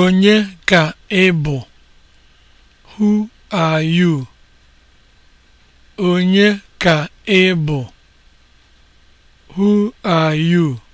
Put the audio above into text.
Onye ka ị bụ? Who are you? Who are you?